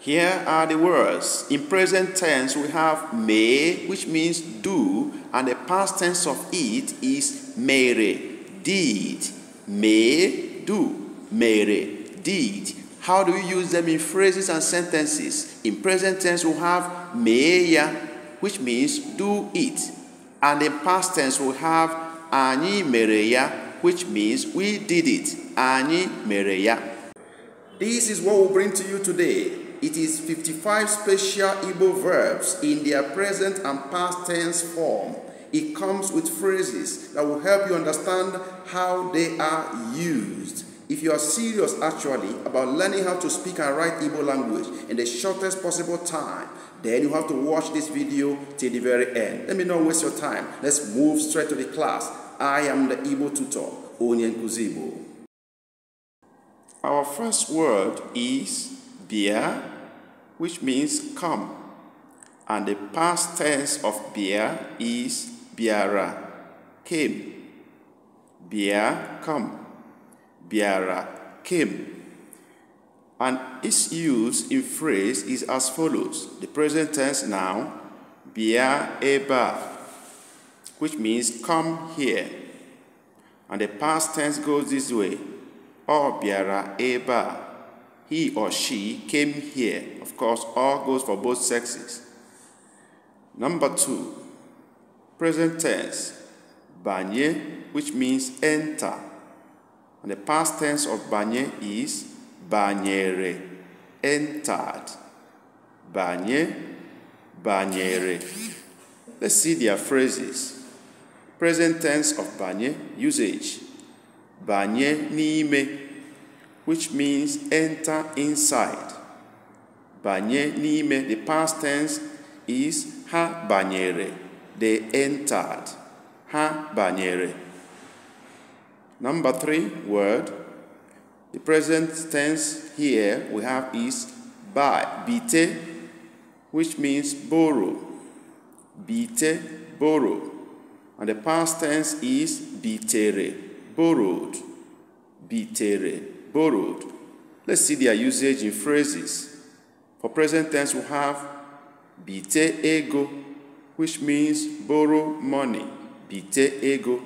Here are the words. In present tense, we have may, which means do, and the past tense of it is mere, did, may, do, mere, did. How do you use them in phrases and sentences? In present tense, we have meya, which means do it, and in past tense, we have ani mereya, which means we did it, ani mereya. This is what we bring to you today. It is 55 special Igbo verbs in their present and past tense form. It comes with phrases that will help you understand how they are used. If you are serious actually about learning how to speak and write Igbo language in the shortest possible time, then you have to watch this video till the very end. Let me not waste your time. Let's move straight to the class. I am the Igbo tutor, Onyen Kuzibo. Our first word is beer, which means come. And the past tense of biya is biara, came. Biya, come. Biara, came. And its use in phrase is as follows. The present tense now, Bia Eba, which means come here. And the past tense goes this way, or oh, Biara Eba he or she came here. Of course, all goes for both sexes. Number two, present tense, banye, which means enter. And the past tense of banye is banyere, entered. Banye, banyere. Let's see their phrases. Present tense of banye, usage. Banye niime, which means enter inside. Banye nime, the past tense is ha banyere. They entered. Ha banyere. Number three word. The present tense here we have is ba bite, which means borrow. Bite, borrow. And the past tense is bitere, borrowed. Bitere borrowed. Let's see their usage in phrases. For present tense, we have bite ego, which means borrow money. Bite ego.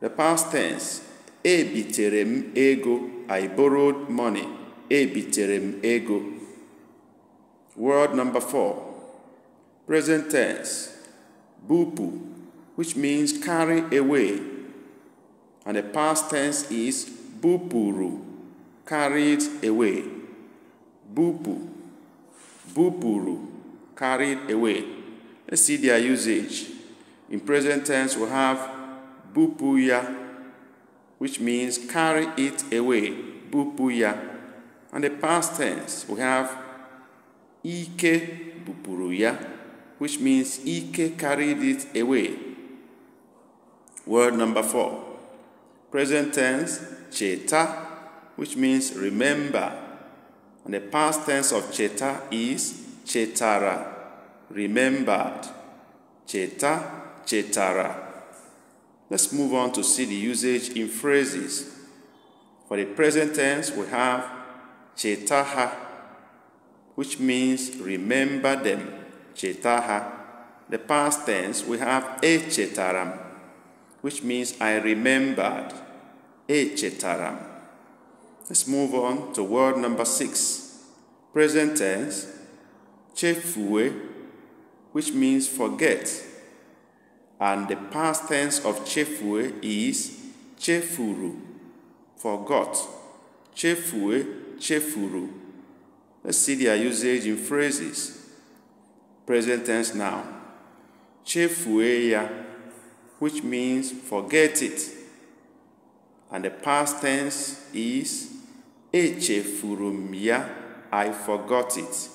The past tense, e biterem ego, I borrowed money. E biterem ego. Word number four, present tense, bupu, which means carry away. And the past tense is bupuru, carried away. Bupu, bupuru, carried away. Let's see their usage. In present tense, we have bupuya, which means carry it away. Bupuya. And the past tense, we have ike bupuruya, which means ike carried it away. Word number four. Present tense, cheta, which means remember. And the past tense of cheta is chetara, remembered. Cheta, chetara. Let's move on to see the usage in phrases. For the present tense, we have chetaha, which means remember them. Chetaha. The past tense, we have echetaram, which means I remembered. Echetaram. Let's move on to word number six. Present tense, chefue, which means forget. And the past tense of chefue is chefuru, forgot. Chefue, chefuru. Let's see their usage in phrases. Present tense now. Chefueya, which means forget it. And the past tense is Echefuru m ya, I forgot it.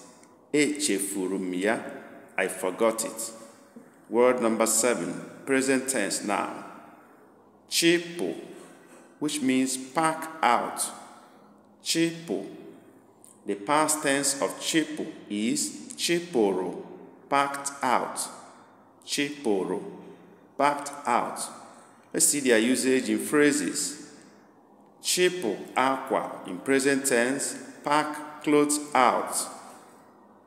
Echefuru m ya, I forgot it. Word number seven, present tense now. Chipo, which means pack out. Chipo. The past tense of chipo is chiporo, packed out. Chiporo, packed out. Let's see their usage in phrases. Chipo aqua in present tense, pack clothes out.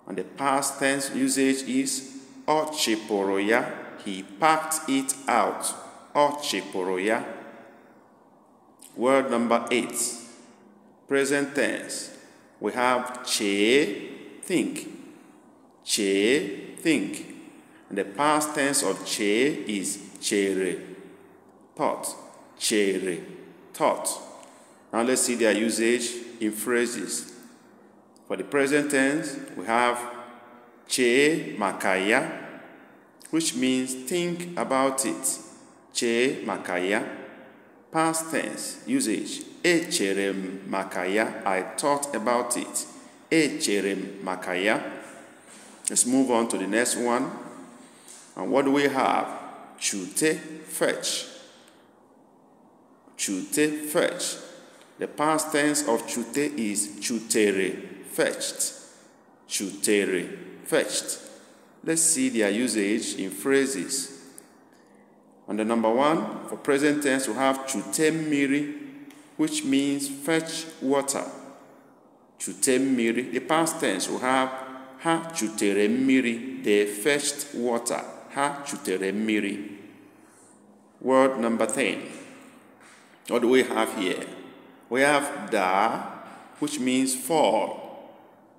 And the past tense usage is ochiporoya, he packed it out. Ochiporoya. Word number eight, present tense. We have che, think. Che, think. And the past tense of che is chere, thought. Chere, thought. Now let's see their usage in phrases. For the present tense, we have che makaya, which means think about it. Che makaya. Past tense usage. Echerem makaya. I thought about it. Echerem makaya. Let's move on to the next one. And what do we have? Chute fetch. Chute fetch. The past tense of chute is chutere, fetched. Chutere, fetched. Let's see their usage in phrases. On the number one, for present tense, we have chutemiri, which means fetch water. Chutemiri. The past tense, we have ha chuteremiri, they fetched water. Ha chuteremiri. Word number 10. What do we have here? We have da, which means fall.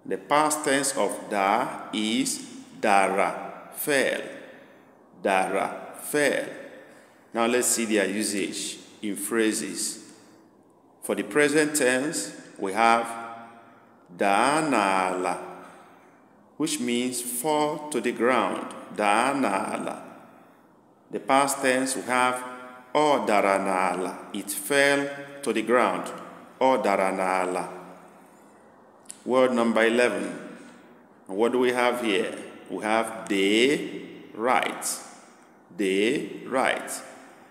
The past tense of da is dara, fell. Dara, fell. Now let's see their usage in phrases. For the present tense, we have danala, which means fall to the ground. Danala. The past tense, we have O daranala, It fell to the ground. O daranala. Word number 11. What do we have here? We have de write. de write.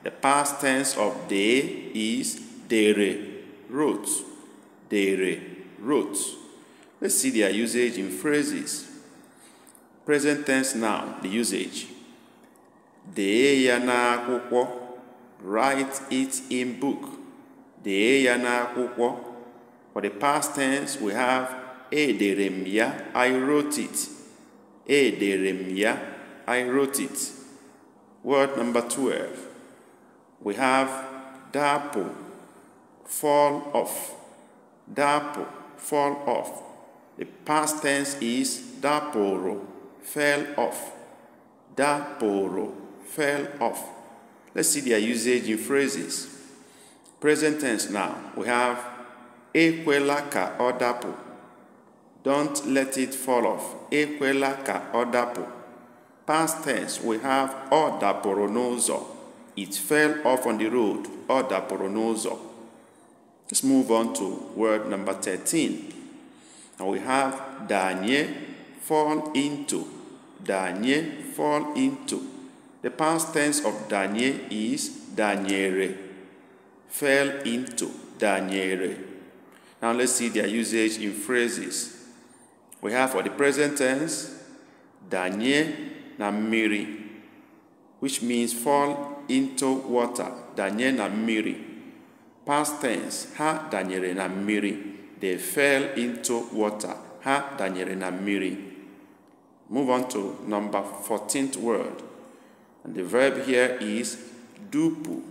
The past tense of de is dere wrote. Dere wrote. Let's see their usage in phrases. Present tense now, the usage. De ya n'akwụkwọ write it in book. Dee ya n'akwụkwọ. For the past tense, we have edere m ya, I wrote it. Edere m ya, I wrote it. Word number 12. We have dapo, fall off. Dapo, fall off. The past tense is daporo, fell off. Daporo, fell off. Let's see their usage in phrases. Present tense now. We have Ekwela ka odapo. Don't let it fall off. Ekwela ka odapo. Past tense, we have odaporonozo. It fell off on the road. Odaporonozo. Let's move on to word number 13. And we have danye fall into. Danye fall into. The past tense of danye is daniere. fell into daniere. Now let's see their usage in phrases. We have for the present tense, danye namiri, which means fall into water, danye namiri. miri. Past tense, ha daniere namiri. miri. They fell into water, ha daniere namiri. miri. Move on to number 14th word, and the verb here is dupu,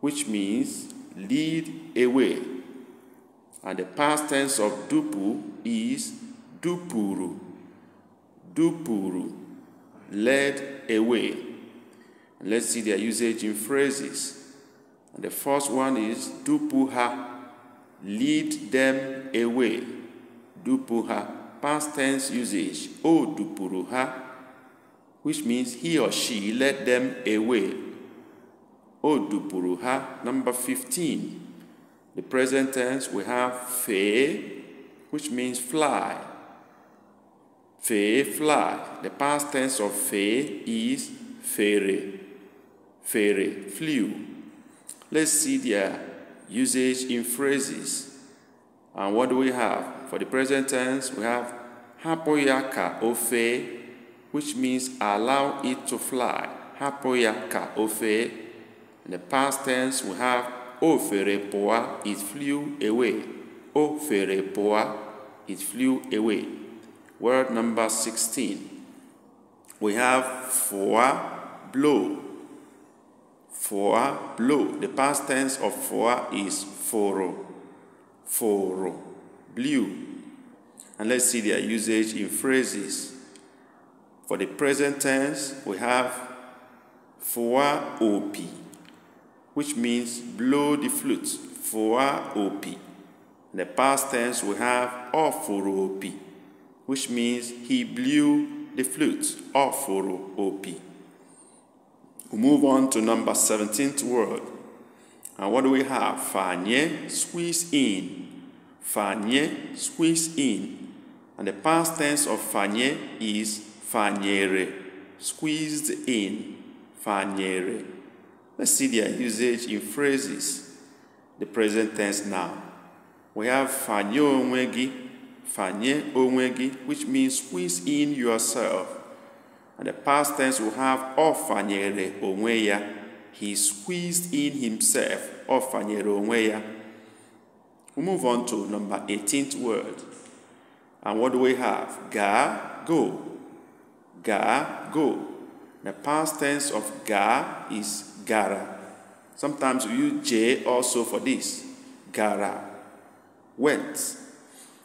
which means lead away. And the past tense of dupu is dupuru. Dupuru, led away. And let's see their usage in phrases. And the first one is dupuha, lead them away. Dupuha, past tense usage. O dupuruha, which means he or she led them away. puruha number 15. The present tense, we have fe, which means fly. Fe, fly. The past tense of fe is fere. Fere, flew. Let's see their usage in phrases. And what do we have? For the present tense, we have hapoyaka ofe which means allow it to fly. Hapụ ya ka o In the past tense, we have o fere it flew away. O fere it flew away. Word number 16. We have foa, blow. Foa, blow. The past tense of foa is fụrụ. Fụrụ, blue. And let's see their usage in phrases. For the present tense, we have fua OP, which means blow the flute. Fua OP. In the past tense, we have Oforo OP, which means he blew the flute. Oforo OP. We move on to number 17th word. And what do we have? Fanye, squeeze in. Fanye, squeeze in. And the past tense of fanye is fanyere, squeezed in, fanyere. Let's see their usage in phrases. The present tense now. We have fanye onwegi, fanye onwegi, which means squeeze in yourself. And the past tense will have ofanyere onweya. He squeezed in himself, ofanyere onweya. We move on to number 18th word. And what do we have? Ga, go ga, go. The past tense of ga is gara. Sometimes we use j also for this, gara. Went.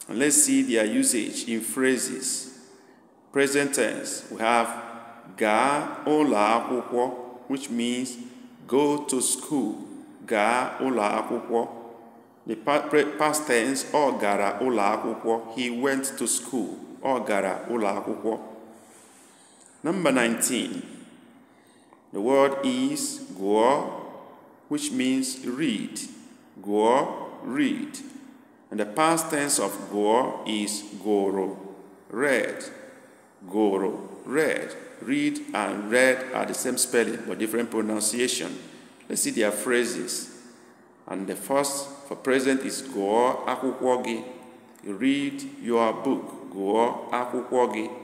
And let's see their usage in phrases. Present tense, we have ga ola akwụkwọ, which means go to school. Ga ola akwụkwọ. The past tense, or gara ola akwụkwọ. He went to school. Ọ gara ola akwụkwọ. Number 19. The word is goa, which means read. Goa, read. And the past tense of goa is goro, read. Goro, read. Read and read are the same spelling but different pronunciation. Let's see their phrases. And the first for present is goa aku gị. Read your book. Goa aku gị.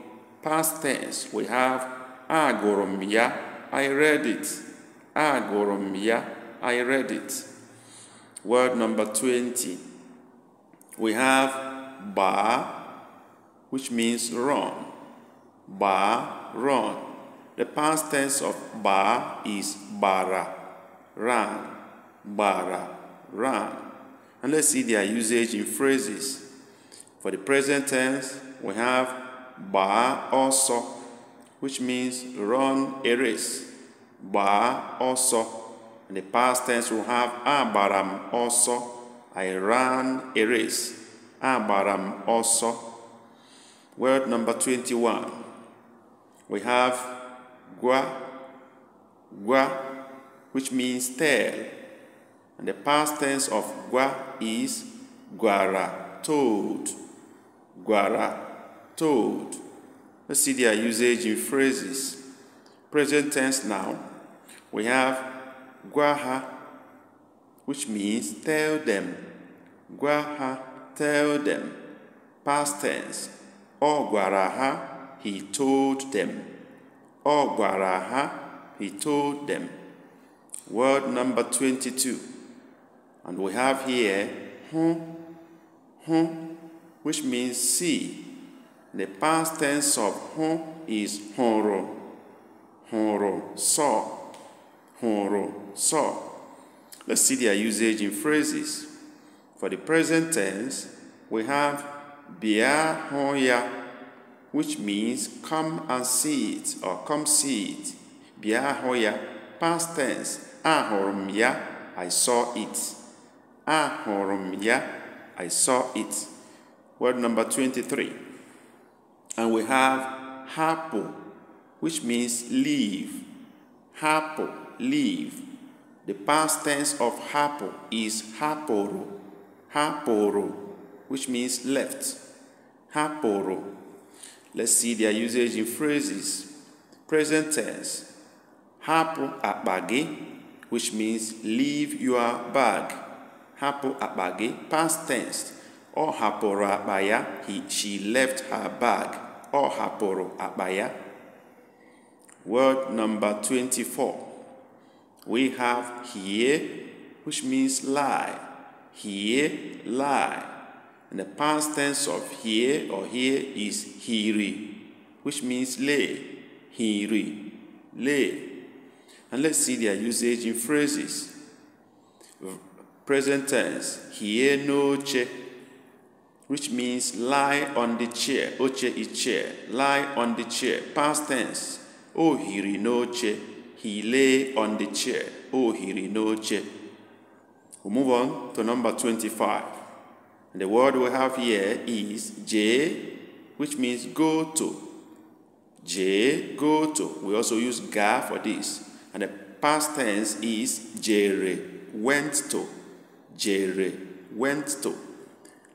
Past tense, we have agoromia, I read it. Agoromia, I read it. Word number 20. We have ba, which means run. Ba, run. The past tense of ba is bara, ran, bara, ran. And let's see their usage in phrases. For the present tense, we have Ba also, which means run a race. Ba also. In the past tense, we have Abaram also. I ran a race. Abaram also. Word number 21. We have Gua. Gua, which means tail. And the past tense of Gua is Guara, toad. Guara, told. Let's see their usage in phrases. Present tense now. We have guaha, which means tell them. Guaha, tell them. Past tense. guaraha, he told them. guaraha, he told them. Word number 22. And we have here, hun, hun, which means see the past tense of hon is honro, honro, saw, honro, saw. Let's see their usage in phrases. For the present tense, we have bia honya, which means come and see it or come see it. Bia hoya, past tense. Ahorum I saw it. Ahorum I saw it. Word number 23 and we have hapo, which means leave. Hapo, leave. The past tense of hapo is haporo, haporo, which means left. Haporo. Let's see their usage in phrases. Present tense. Hapo abage, which means leave your bag. Hapo abage, past tense. Or haporo abaya, he, she left her bag. ọ hapụrụ akpa ya word number 24 we have here which means lie here lie and the past tense of here or here is hiri which means lay hiri lay and let's see their usage in phrases present tense here no che. which means lie on the chair. Oche is chair. Lie on the chair. Past tense. O hirinoche. He lay on the chair. O hirinoche. we move on to number 25. the word we have here is J, which means go to. J, go to. We also use ga for this. And the past tense is jere, went to. Jere, went to.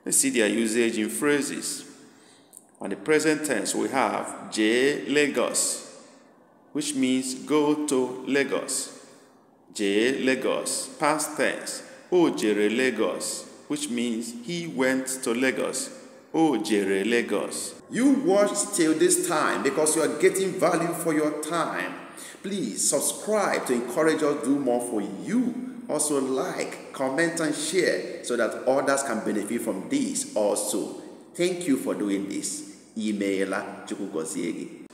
Let's see their usage in phrases. On the present tense, we have J Lagos, which means go to Lagos. J Lagos, past tense, O Jere Lagos, which means he went to Lagos. O Jere Lagos. You watched till this time because you are getting value for your time. Please subscribe to encourage us to do more for you also like, comment, and share so that others can benefit from this also. Thank you for doing this. Imeela Chukugoziegi.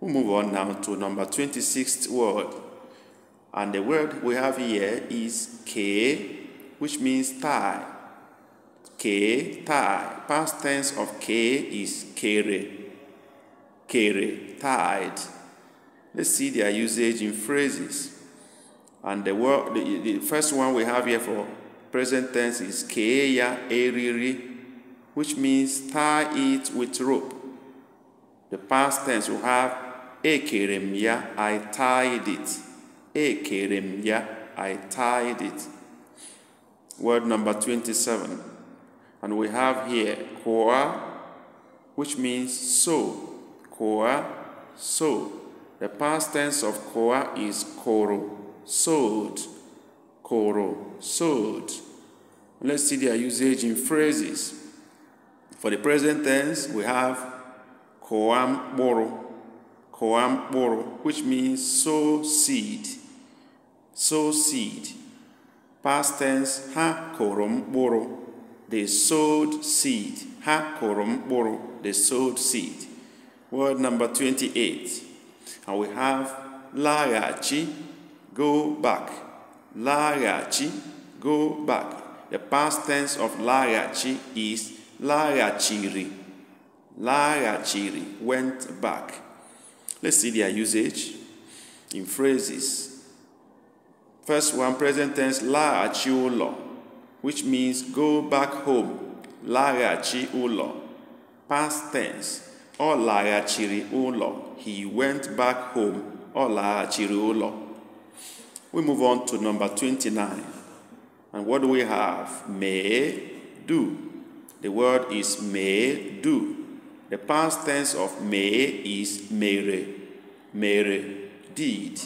we we move on now to number 26th word. And the word we have here is K, which means tie. K, tie. Past tense of K is kere. Kere, tied. Let's see their usage in phrases. And the, word, the, the first one we have here for present tense is keya eriri, which means tie it with rope. The past tense we have ekeremya, I tied it. Ekeremya, I tied it. Word number 27. And we have here koa, which means so. Koa, so. The past tense of koa is koro sowed, koro, sowed. Let's see their usage in phrases. For the present tense, we have koam boro, boro, which means sow seed, sow seed. Past tense, ha korom boro, they sowed seed. Ha korom boro, they sowed seed. Word number 28. And we have lagachi, go back. lagachi. go back. The past tense of lagachi is lagachiri. Lagachiri went back. Let's see their usage in phrases. First one, present tense, larachi ulo, which means go back home. Larachi ulo. Past tense, ọ laghachiri ụlọ. He went back home. Ọ laghachiri ụlọ. We move on to number 29. And what do we have? May do. The word is may do. The past tense of may is mere. Mere did.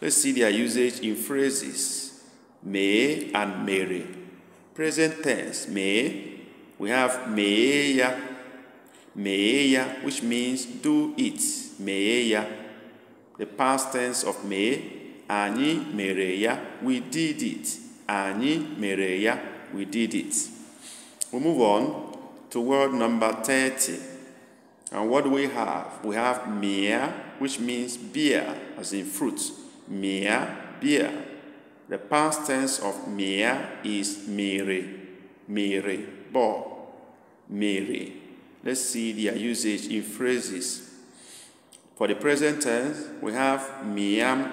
Let's see their usage in phrases. May and mere. Present tense, may. We have meya, meya, which means do it. Meya. The past tense of may anyị mere ya we did it anyị mere ya we did it we move on to word number 30 and what do we have we have mia which means beer as in fruit mia beer the past tense of mia is mere mere bo mere let's see their usage in phrases for the present tense we have mia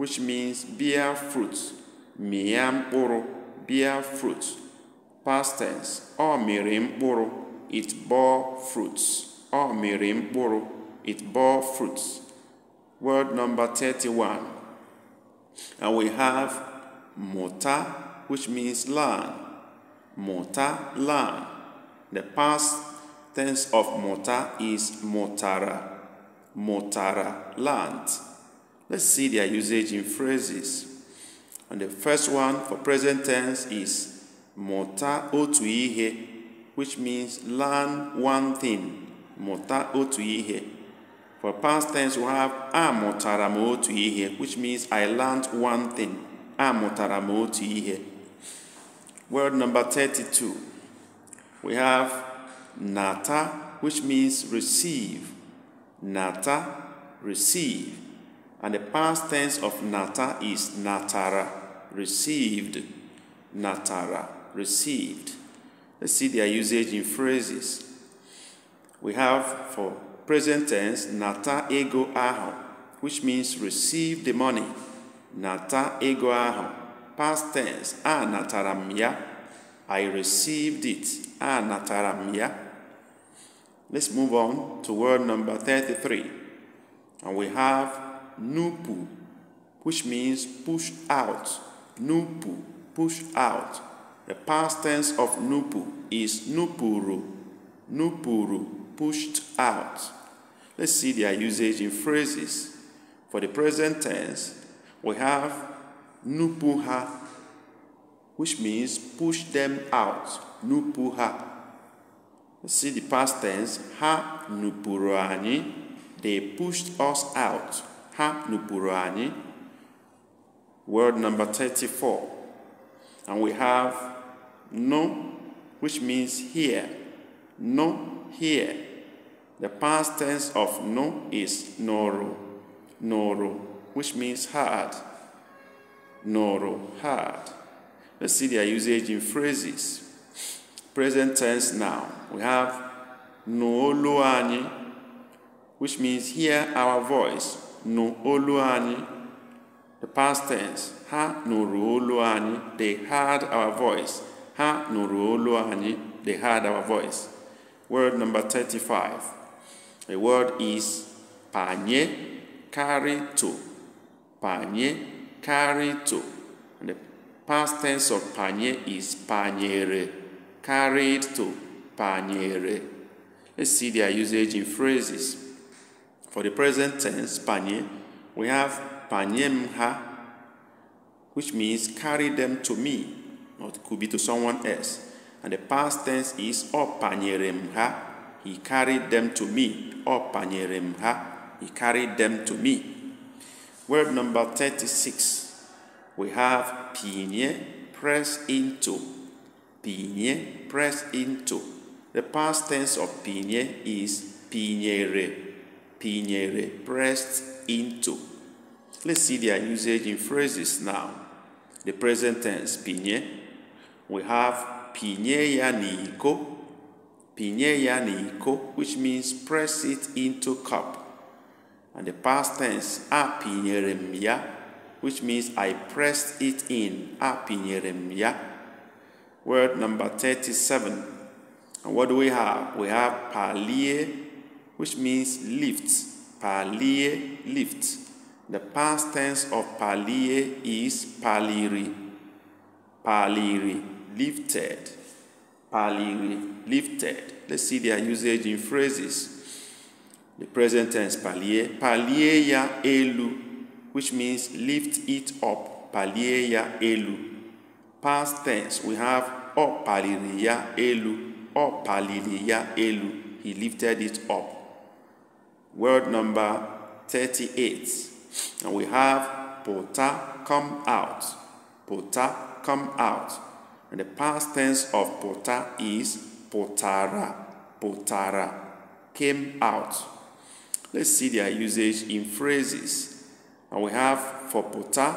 which means bear fruit, mịa bear fruit, past tense, or mịrị it bore fruits, or mịrị it bore fruits. Word number 31. And we have mota, which means land. Mota land. The past tense of mota is motara. Motara land. Let's see their usage in phrases. And the first one for present tense is mota otuihe, which means learn one thing. Mota otuihe. For past tense, we have amotara m which means I learned one thing. Amotara m Word number 32. We have nata, which means receive. Nata, receive. And the past tense of nata is natara, received, natara, received. Let's see their usage in phrases. We have for present tense nata ego aho, which means receive the money. Nata ego aho, past tense, a nataramia, I received it, a nataramia. Let's move on to word number 33. And we have nupu, which means push out. Nupu, push out. The past tense of nupu is nupuru. Nupuru, pushed out. Let's see their usage in phrases. For the present tense, we have nupuha, which means push them out. Nupuha. Let's see the past tense. Ha nupuruani, They pushed us out ha nupụrụ anyị word number 34 and we have no which means here no here the past tense of no is noro noro which means hard noro hard let's see their usage in phrases present tense now we have noolo which means hear our voice nụ olu anyị the past tense ha nụrụ olu anyị they heard our voice ha nụrụ olu anyị they heard our voice word number 35 the word is panye karito panye karito and the past tense of panye is panyere carried to panyere let's see their usage in phrases for the present tense, panye, we have panyemha, which means carry them to me, or it could be to someone else. And the past tense is opanyeremha, he carried them to me. Opanyeremha, he carried them to me. Word number 36, we have pinye, press into. Pinye, press into. The past tense of pinye is pinyere pinyere, pressed into. Let's see their usage in phrases now. The present tense, pinye. We have pinyeya niiko, pinyeya niiko, which means press it into cup. And the past tense, apinyeremya, which means I pressed it in, apinyeremya. Word number 37. And what do we have? We have palie which means lift, palie lift. The past tense of palie is paliri, paliri lifted, paliri lifted. Let's see their usage in phrases. The present tense palie ya elu, which means lift it up, ya elu. Past tense, we have opaliriya elu, opaliriya elu. He lifted it up word number 38. And we have pota come out. Pota come out. And the past tense of pota is potara. Potara came out. Let's see their usage in phrases. And we have for pota,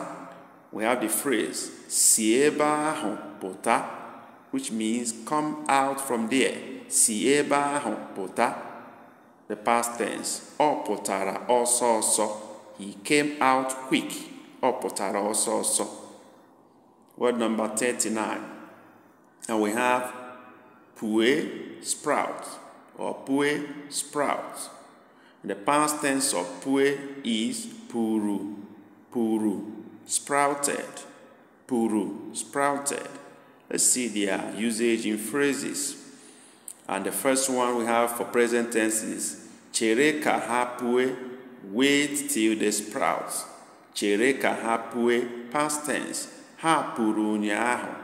we have the phrase sieba pota, which means come out from there. Sieba pota the past tense, ọ pụtara ọsọ ọsọ. He came out quick. Ọ pụtara ọsọ ọsọ. Word number 39. And we have pue sprout or pue sprout. The past tense of pue is puru, puru, sprouted, puru, sprouted. Let's see their usage in phrases. And the first one we have for present tense is Chereka hapu'e. wait till they sprout. Chereka hapu'e past tense. hapuru puru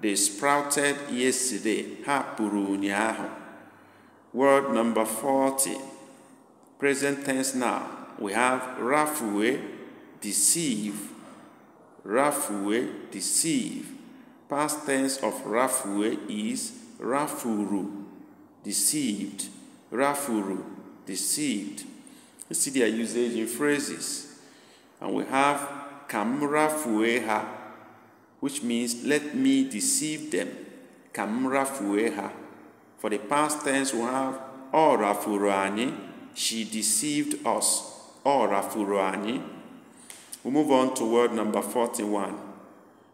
They sprouted yesterday. Hapuru puru Word number 40. Present tense now. We have rafue, deceive. Rafue, deceive. Past tense of rafue is rafuru deceived, rafuru, deceived. You see their usage in phrases. And we have kamra which means let me deceive them. Kamra For the past tense, we have o oh, she deceived us. O oh, We move on to word number 41.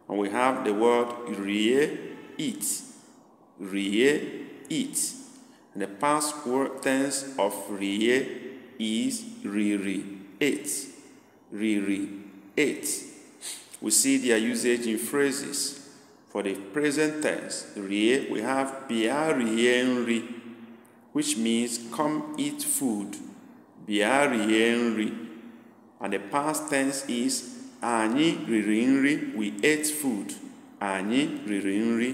And we have the word rie, eat. Rie, eat. The past tense of rie is riri eight. Riri eight. We see their usage in phrases. For the present tense, rie, we have bia rienri, which means come eat food. Bia rienri. And the past tense is anyị riri nri, we ate food. Anyị riri nri.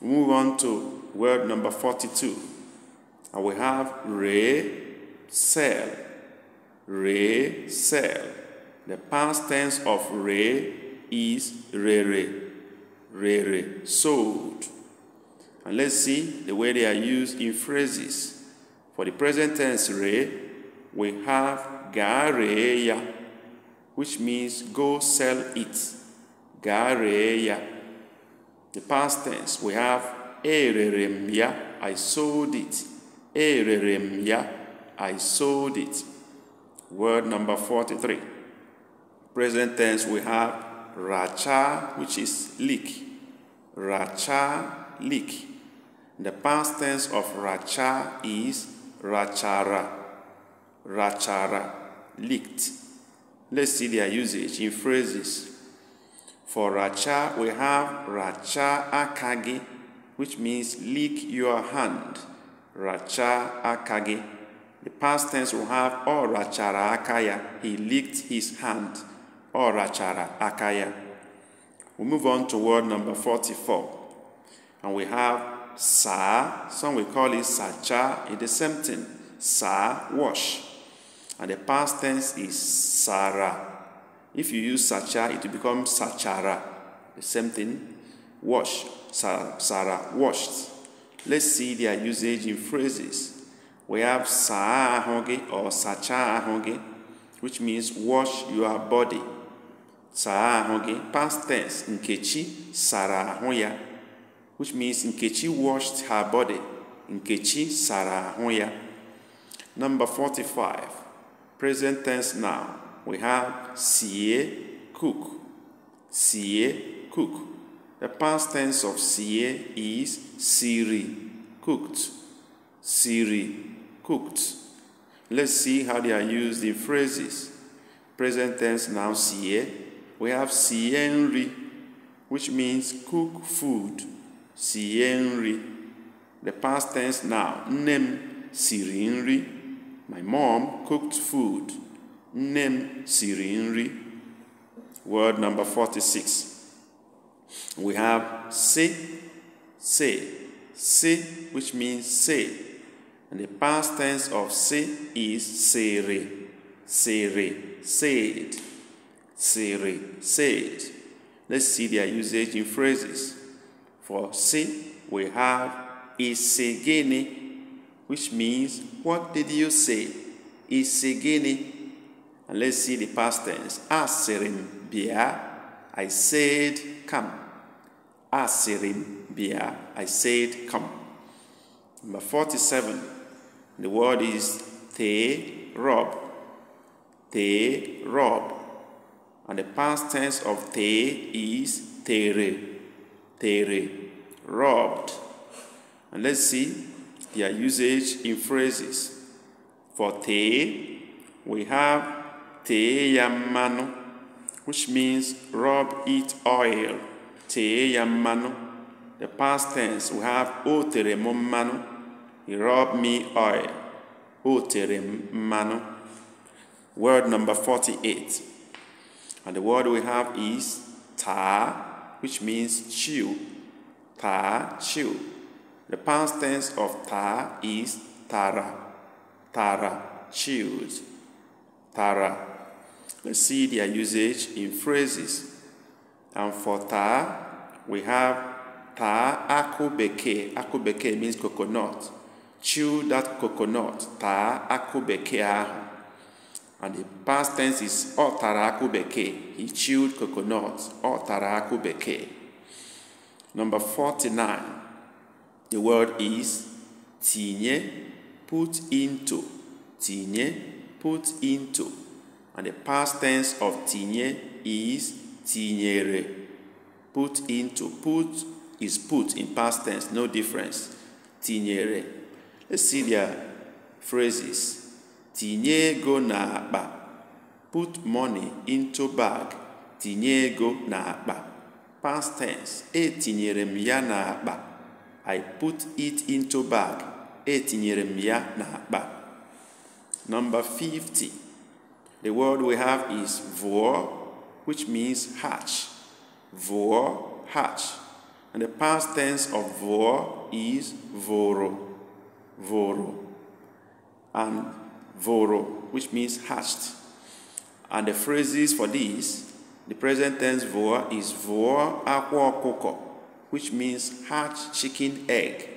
Move on to word number 42. And we have re, sell, re, sell. The past tense of re is re, re, re, re, sold. And let's see the way they are used in phrases. For the present tense re, we have gareya, which means go sell it. Gareya. The past tense, we have Erere m ya, I sold it. Erere m ya, I sold it. Word number 43. Present tense we have racha, which is leak. Racha, leak. The past tense of racha is rachara. Rachara, leaked. Let's see their usage in phrases. For racha, we have racha akagi, which means lick your hand. Racha akage. The past tense will have or rachara akaya. He licked his hand. Or rachara akaya. We move on to word number 44. And we have sa. Some we call it sacha. It is the same thing. Sa wash. And the past tense is sara. If you use sacha, it will become sachara. The same thing. wash, Sarah washed. Let's see their usage in phrases. We have saa ahụ or sacha ahụ which means wash your body. Saa ahụ past tense, Nkechi sara ahụ which means Nkechi washed her body. Nkechi sara ahụ Number 45, present tense now. We have sie cook. Sie cook The past tense of sié is siri, cooked. Siri, cooked. Let's see how they are used in phrases. Present tense now sié. We have sienri, which means cook food. Sienri. The past tense now nem sirinri. My mom cooked food. Nem sirinri. Word number 46. We have say, say, say, which means say. And the past tense of say is sere, sere, said, sere, said. Let's see their usage in phrases. For say, we have isegene, which means what did you say? Isegene. And let's see the past tense. Aserim bia, I said come. Asiribia. Ah, I said, Come. Number 47. The word is Te Rob. Te Rob. And the past tense of Te is Tere. Tere. Robbed. And let's see their usage in phrases. For Te, we have Te Yamano, which means rub it oil the past tense we have o manu. he robbed me oil Oterem manu. word number 48 and the word we have is ta, which means chew ta chew the past tense of ta is tara tara chewed tara let's see their usage in phrases and for ta, we have ta akubeke. Akubeke means coconut. Chew that coconut. Ta akubeke ahu. And the past tense is akubeké. He chewed coconut. akubeké. Number 49. The word is tinye, put into. Tinye, put into. And the past tense of tinye is tinyere put into put is put in past tense no difference tinyere let's see their phrases tinye ego n'akpa put money into bag tinye ego n'akpa past tense etinyere m ya n'akpa i put it into bag etinyere m ya n'akpa number 50 the word we have is vụọ which means hatch. Vor, hatch. And the past tense of vor is voro. Voro. And voro, which means hatched. And the phrases for this, the present tense vor is vor aqua coco, which means hatch chicken egg.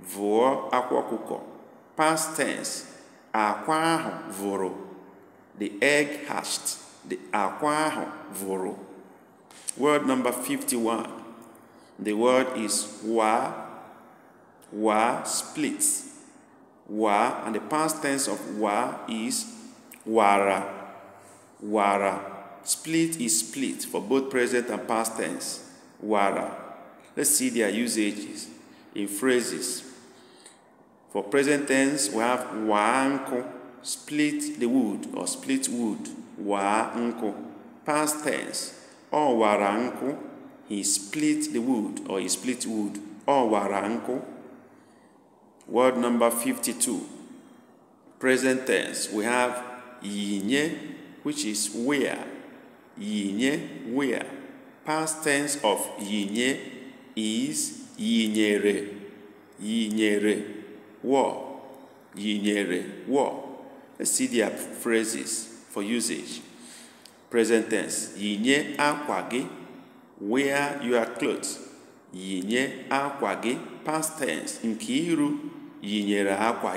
Vor aqua coco. Past tense, aqua voro. The egg hatched akwa ahụ vụrụ word number 51 the word is wa wa splits wa and the past tense of wa is wara wara split is split for both present and past tense wara let's see their usages in phrases for present tense we have waanko split the wood or split wood waa nkụ past tense ọ wara nkụ he split the wood or he split wood ọ wara nkụ word number 52 present tense we have yinye which is where yinye where past tense of yinye is yinyere yinyere wo yinyere wo let's see their phrases for usage. Present tense. Yinye akwa gị. Wear your clothes. Yinye akwa gị. Past tense. Nkiru yinyere akwa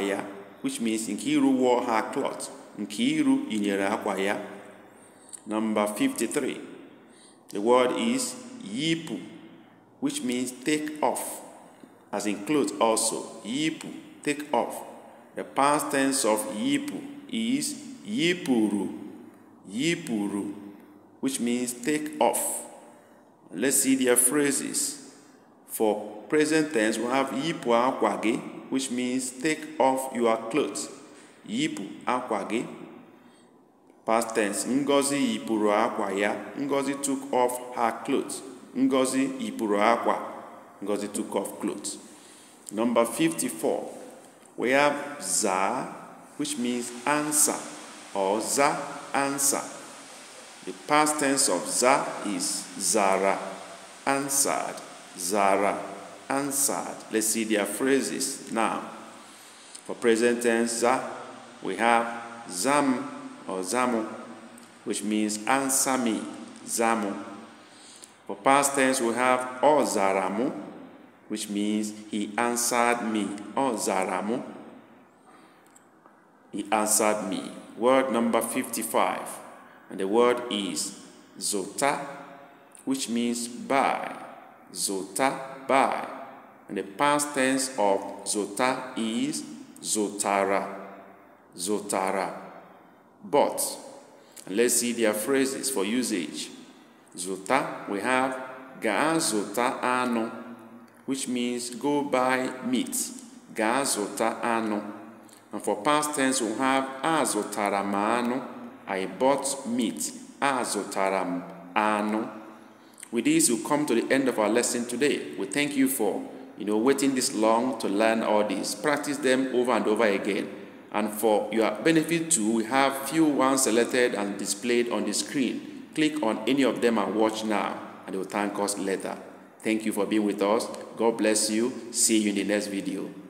Which means Nkiru wore her clothes. Nkiru yinyere akwa ya. Number 53. The word is yipu, which means take off, as in clothes also. Yipu, take off. The past tense of yipu is yipuru yipuru which means take off let's see their phrases for present tense we have yipu akwa which means take off your clothes yipu akwa past tense ngozi yipuru akwa ya ngozi took off her clothes ngozi yipuru akwa ngozi took off clothes number 54 we have za which means answer or za answer. The past tense of za is zara answered, zara answered. Let's see their phrases now. For present tense za, we have zam or zamu, which means answer me, zamu. For past tense, we have o zaramu, which means he answered me, o zaramu. He answered me word number 55, and the word is zota, which means by. Zota, by. And the past tense of zota is zotara. Zotara. But, let's see their phrases for usage. Zota, we have ga zota ano, which means go buy meat. Ga zota ano. And for past tense, we have azotaramano, I bought meat, azotaramano. With this, we come to the end of our lesson today. We thank you for, you know, waiting this long to learn all these. Practice them over and over again. And for your benefit too, we have few ones selected and displayed on the screen. Click on any of them and watch now, and they will thank us later. Thank you for being with us. God bless you. See you in the next video.